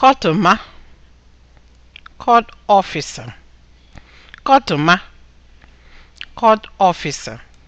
kọtụma court officer court officer